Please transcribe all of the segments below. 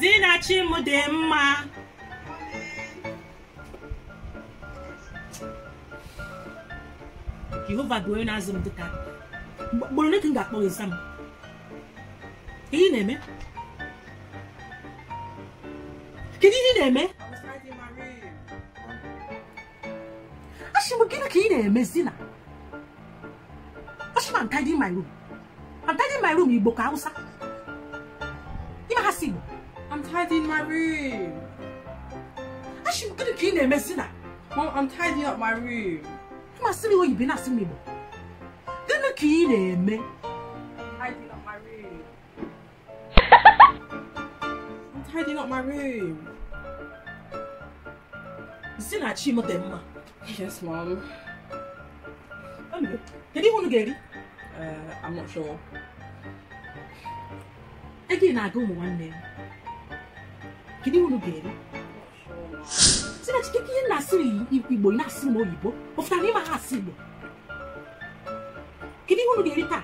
zinachi m dị mma jehova bụ onye na-azụ m dịka m ga-akpọ ịza m ị na-eme kedu ihe na-eme na-eme zina asị my room my room igbo ka I'm tidying my room. Actually, gonna clean a mess, Mom, I'm tidying up my room. You must see me what you've been asking me. Gonna clean a mess. Tidying up my room. I'm tidying up my room. Zina Chimo Demma. Yes, Mom. Did you want to get it? Uh, I'm not sure. Again, I go one name. kedu ihe ga-eri chineke ihe na-asịrị igbo ị na-asị m oyibo o pụtara ịma ha asị igbo kedu ihe ga-eri taa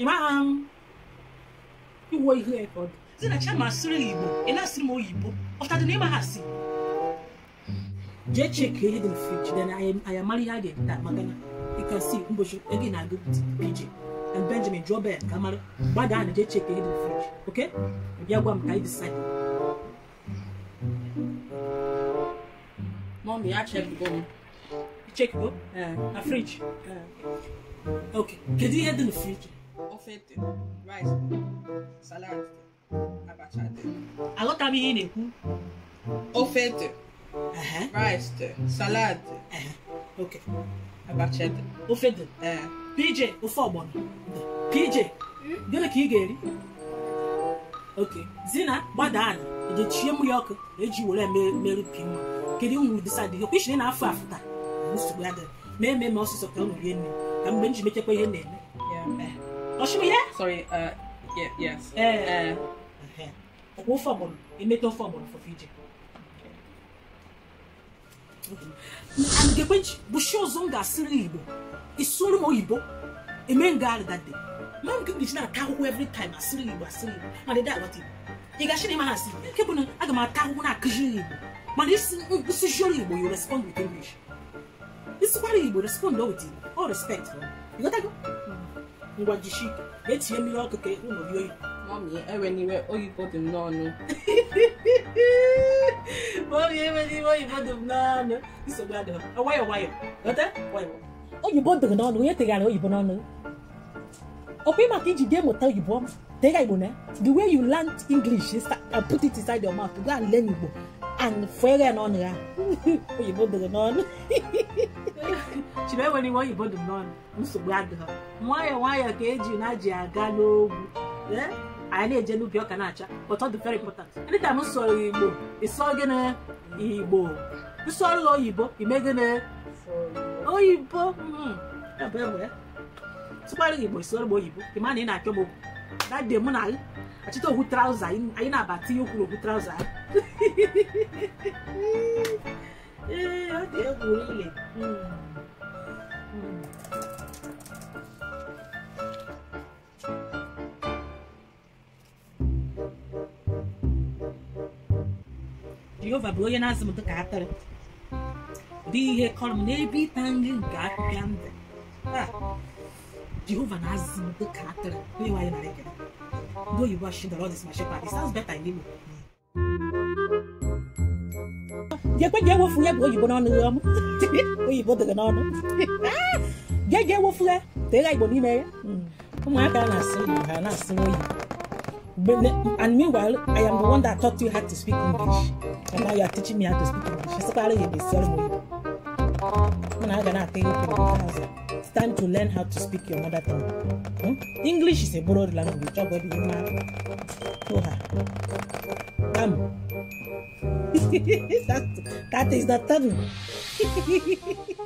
ịmagha m iwuo ihe ọ dị zinachi ama asịrị igbo na-asị ma oyibo ọ na ịma ha asị ihe dị mfe jide na ayamara ihe a ga maka na ịkasi na-agụ and Benjamin Jobe eh, and Kamara, Bada and they check the hidden fridge. Okay? We are going to decide. Mommy, I check the go. Check go? Uh, eh, a fridge. Uh, okay. Can you hidden fridge? Ofete, rice, salad, abacha. I got to be in it. Ofete, rice, salad. Uh-huh. Okay. Abacha. Ofete. Uh, PJ ofe ọgbọnọ PJ hmm? gịnị ka ị ga-eri oke zina gbada ejechie mmiri ọkụ eji were merupi nwa kedu nwuru disadị gị kwishiri na afọ afụta nsogbu ma eme ọsịsọ ka mgbe m mechekwa ihe na-eme ọchịbụ uh, eh. eh. ofe ọgbọnọ ofe ọgbọnọ anigekwenji bushi ọzọ m ga-asịrị igbo isụrụ m A eme ngagharị that day ma m gị na-ata ahụhụ every time as igbo asịrị igbo ma dede agbata igbo ị gashi na ịma ha asị nke bụ na aga m ata ahụhụ na-akụziri this is surely nkwụsịzioro You respond with english This isikwara igbo respond with him. all respect You got ịghọtago mm-hmm. ngwa jishi etinye mmiri ọkụ ka ụlọ oyi. Mami, enwe n'iwe oyibo dị No. No oyibo dịrị n'ọnụ onye tegharịa oyibo n'ọnụ ọkwa maka iji ga emụta oyibo tega igbo na the way you learn english and put it inside your mouth go and learn igbo e and fere n'ọnụ ya oyibo dịrị n'ọnụ chiri enwere iwe oyibo dị n'ọnụ nsogbu adịghị nwayọọ nwayọọ ka eji na ji aga n'ogwu anyị na-eje n'ubi ọka na-acha but ọ dị very important anytime m sọrọ igbo ịsọ gịnị igbo nsọrọ oyibo ime gịnị oyibo hmm. tụkpara igbo ịsọrọ m oyibo ịma na ị na-akpọ m okwu that day mụ na achịta okwu trauza anyị na-aba tinye okwuru okwu trauza ee ọ dị egwu ile hmm. hmm. jehova bụ onye na-azụ m dịka atịrị ụdị ihe kọrọ m n'ebe ịta nri nke apịpịa ndụ taa jehova na-azụ m dịka atịrị onye nwaanyị nara ekele ndị oyibo ọchịchị dọrọ ọdịs ma shepa it sounds better in igbo jekwe jee wofu ya bụ oyibo n'ọnụ ya ọmụ oyibo dịrị n'ọnụ jee jee wofu ya tee ya igbo n'ime ya ụmụaka na-asị ha na-asị oyibo and meanwhile i am the one that taught you how to speak english And now you are teaching me how to speak English. in the ceremony. I'm not going to you It's time to learn how to speak your mother tongue. Hmm? English is a borrowed language. to her. Come. that is the third